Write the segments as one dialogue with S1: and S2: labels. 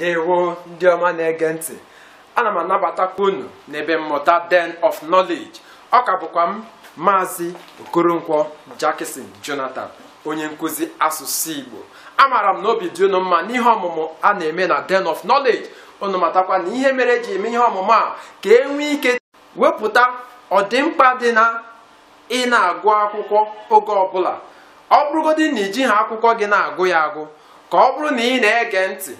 S1: ndewo ndị ọma na-ege ntị ana m anabatakwa unu n'ebe mmụta den of knowledge ọ ka bụkwa m maazị okoronkwọ jackson jonathan onye nkụzi asụsụ igbo amaara m na obi dị unu mma n'ihe ọmụmụ a na-eme na den of knowledge unu matakwa na ihe mere ji eme ihe ọmụmụ a ka e nwee ike wepụta ọdịmkpa dị na ị na-agụ akwụkwọ oge ọbụla ọ bụrụgodị na iji ha akwụkwọ gị na-agụ ya agụ ka ọ bụrụ na ị na-ege ntị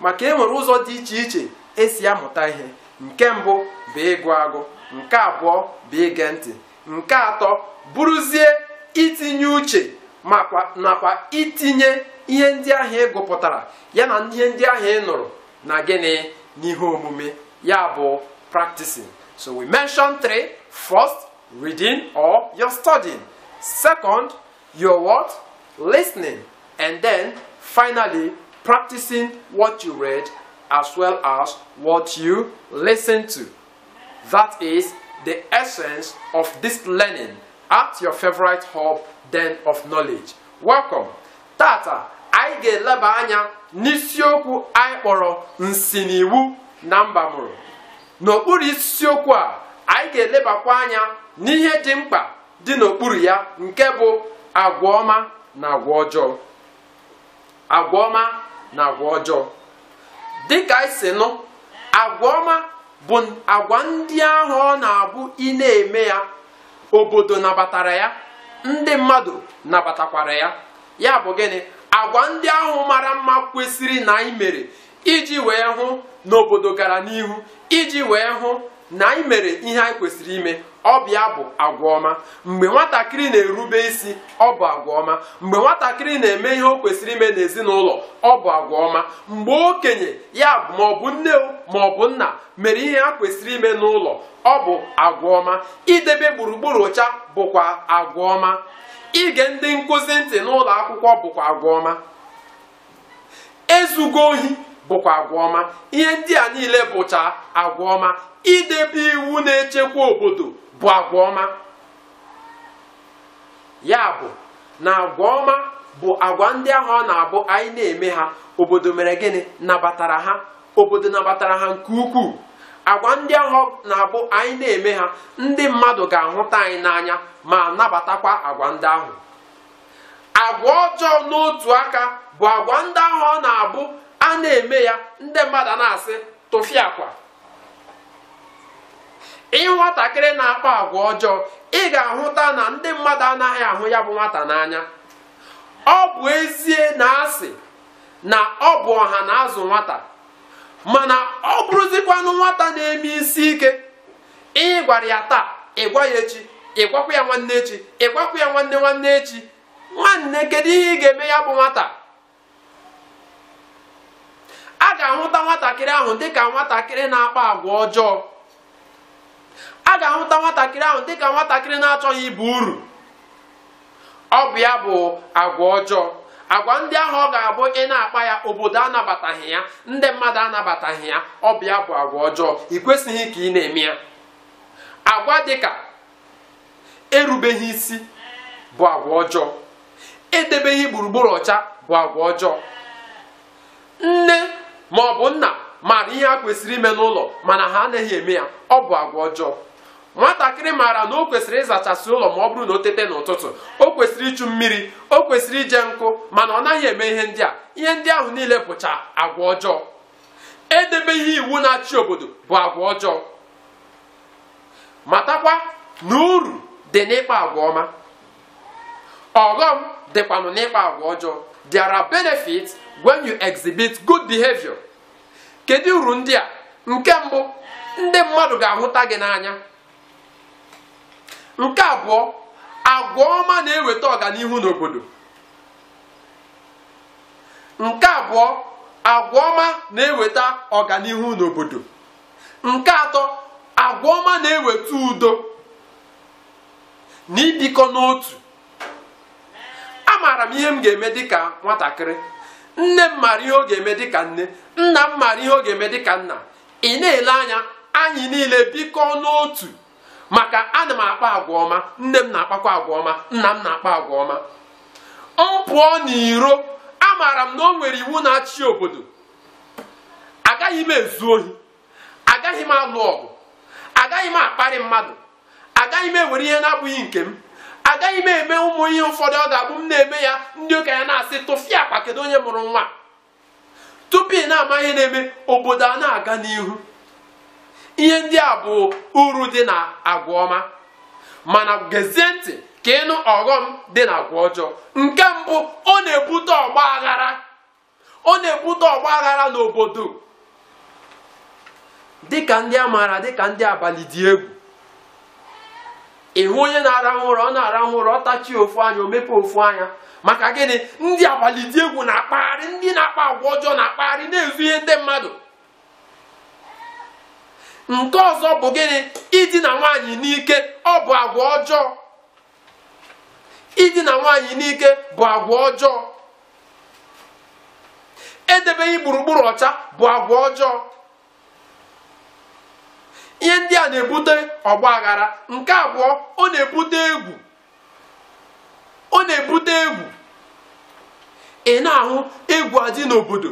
S1: maka enwere ụzọ dị iche iche esi amụta ihe nke mbụ bụ ịgụ agụ nke abụọ bụ ige ntị nke atọ bụrụzie itinye uche makwa nakwa itinye ihe ndị ahịa ị gụpụtara ya na ihe ndị ahụ ị nụrụ na gịnị n'ihe omume ya bụ practicing so we mention three first reading or your studying second your what listening and then finally practicing what you read as well as what you listen to. That is the essence of this learning at your favorite hub den of knowledge. Welcome. Tata, anyị ga-eleba anya n'isiokwu anyị kpọrọ nsiniwu na mbamuru N'okpuru isiokwu a, anyị ga-elebakwa anya n'ihe dị mkpa dị n'okpuru ya nke bụ agwa ọma na agwa ọjọọ. Agwa ọma na agwa ọjọọ dịka anyị e si nụ agwa ọma bụ agwa ndị ahụ ọ na-abụ ị na-eme ya obodo nabatara ya ndị mmadụ nabatakwara ya ya bụ gịnị agwa ndị ahụ mara mma kwesịrị na anyị mere iji wee hụ na obodo gara n'ihu iji wee hụ na anyị mere ihe anyị kwesịrị ime ọbịa bụ agwa ọma mgbe nwatakịrị na-erube isi ọ bụ agwa ọma mgbe nwatakịrị na-eme ihe o kwesịrị ime n'ezinụlọ ọ bụ agwa ọma mgbe okenye ya bụ maọbụ nne maọbụ nna mere ihe ha kwesịrị ime n'ụlọ ọ bụ agwa ọma idebe gburugburu ọcha bụkwa agwa ọma ige ndị nkụzi ntị n'ụlọ akwụkwọ bụkwa agwa ọma ezugo ohi bụkwa agwa ọma ihe ndị a niile bụcha agwa ọma idebe iwu na-echekwa obodo bụ agwa ya bụ na agwa ọma bụ agwa ndị ahụ ọ na-abụ anyị na-eme ha obodo mere gịnị nabatara ha obodo nabatara ha nke ukwuu agwa ndị ahụ na-abụ anyị na-eme ha ndị mmadụ ga-ahụta anyị n'anya ma nabatakwa agwa ndị ahụ agwa ọjọọ n'otu aka bụ agwa ndị ahụ ọ na-abụ a na-eme ya ndị mmadụ na-asị tụfịa akwa ị nwatakịrị na-akpa agwa ọjọọ ị ga-ahụta na ndị mmadụ anaghị ahụ ya bụ nwata n'anya ọ bụ ezie na asị na ọ bụ ọha na azụ nwata mana ọ bụrụzikwanụ nwata na-eme isi ike ị gwara ya taa ị gwa ya echi ị gwakwa ya nwanne echi ị gwakwa ya nwanne nwanne echi nwanne kedu ihe ị ga-eme ya bụ nwata a ga-ahụta nwatakịrị ahụ dị ka nwatakịrị na-akpa agwa ọjọọ a ga-ahụta nwatakịrị ahụ dịka nwatakịrị na-achọghị ibu uru ọ bụ ya bụ agwa ọjọọ agwa ndị ahụ ọ ga-abụ ị na-akpa ya obodo anabataghị ya ndị mmadụ anabataghị ya ọ bụ ya bụ agwa ọjọọ ị kwesịghị ka ị na-eme ya agwa dịka erubeghị isi bụ agwa ọjọọ edebeghị gburugburu ọcha bụ agwa ọjọọ nne ma ọ bụ nna maara ihe a kwesịrị ime n'ụlọ mana ha anaghị eme ya ọ bụ agwa ọjọọ nwatakịrị maara na o kwesịrị ịzachasị ụlọ ma ọ bụrụ na o tete n'ụtụtụ o kwesịrị ịchụ mmiri o kwesịrị ije nkụ mana ọ naghị eme ihe ndị a ihe ndị ahụ niile bụcha agwa ọjọọ ihe iwu na-achị obodo bụ agwa ọjọọ matakwa na uru dị n'ịkpa agwa ọma ọghọm dịkwanụ n'ịkpa agwa ọjọọ when you exhibit kedu uru ndị nke mbụ ndị mmadụ ga-ahụta gị n'anya nke abụọ agwa ọma na-eweta ọganihu n'obodo nke atọ agwa ọma na-eweta udo na ibikọ n'otu amaara m ihe m ga-eme dịka nwatakịrị nne m mara ihe ọ ga-eme dịka nne nna m mara ihe ọ ga-eme dịka nna ị na-ele anya anyị niile bikọ n'otu maka ana m akpa agwa ọma nne m na-akpakwa agwa ọma nna m na-akpa agwa ọma m pụọ n'iro maara m na o nwere iwu na-achị obodo agaghị m ezu ohi agaghị m alụ ọgụ agaghị m akparị mmadụ agaghị m ewere ihe na-abụghị nke m agaghị m eme ụmụ ihe ụfọdụ ọ ga-abụ m na-eme ya ndị okenye na-asị tụfịa akpa kedu onye mụrụ nwa tupu ị na-ama ihe na-eme obodo a na-aga n'ihu ihe ndị a bụ uru dị na agwa ọma mana gezie ntị ka ịnụ ọghọm dị na agwa ọjọọ nke mbụ ọ na-ebute ọgba aghara ọ na-ebute ọgba aghara n'obodo dịka ndị a maara dịka ndị abalị dị egwu ịhụ onye na ara ụra ọ na ara ụra ọ tachie ofu anya o ofu anya maka gịnị ndị abalị dị egwu na-akpagharị ndị na-akpa agwa ọjọọ na-akpagharị na-ezu ihe ndị mmadụ nke ọzọ bụ gịnị idina nwaanyị n'ike ọ bụ agwa ọjọọ idina nwaanyị n'ike bụ agwa ọjọọ edebeghị gburugburu ọcha bụ agwa ọjọọ ihe ndị a na-ebute ọgba nke abụọ ọ na-ebute egwu ọ na-ebute egwu ị na-ahụ egwu adị n'obodo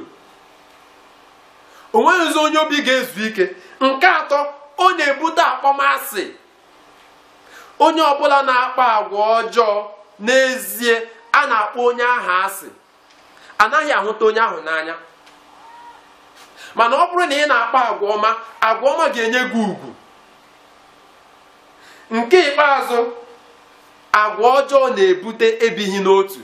S1: onweghịzi onye obi ga-ezu ike nke atọ ọ na-ebute akpọmasị onye ọbụla na akpọ agwa ọjọọ n'ezie a na-akpọ onye ahụ asị anaghị ahụta onye ahụ n'anya mana ọ bụrụ na ị na akpọ agwa ọma agwa ọma ga-enye gị ugwu nke ikpeazụ agwa ọjọọ na-ebute ebighị n'otu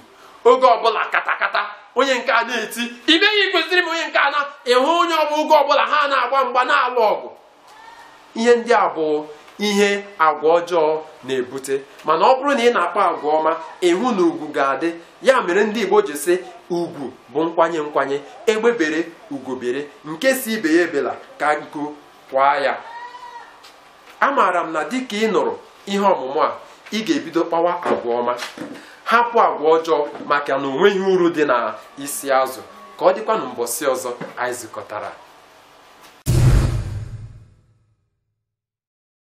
S1: oge ọbụla katakata onye nke a na-eti imeghị kwesịrị m onye nke a na ịhụ onye ọbụgo ọbụla ha na-agba mgba na-alụ ọgụ ihe ndị a bụ ihe agwa ọjọọ na-ebute mana ọ bụrụ na ị na-akpa agwa ọma ịhụ na ugwu ga-adị ya mere ndị Igbo ji sị ugwu bụ nkwanye nkwanye egbebere ugobere nke si ibe ya ebela ka nku kwa ya amaara m na dịka ị nụrụ ihe ọmụmụ a ị ga-ebido kpawa agwa ọma hapụ agwa ọjọọ maka na onweghi uru dị na isi azụ ka ọ dịkwa na mbọsị ọzọ anyị zụkọtara